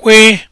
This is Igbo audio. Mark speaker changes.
Speaker 1: kwe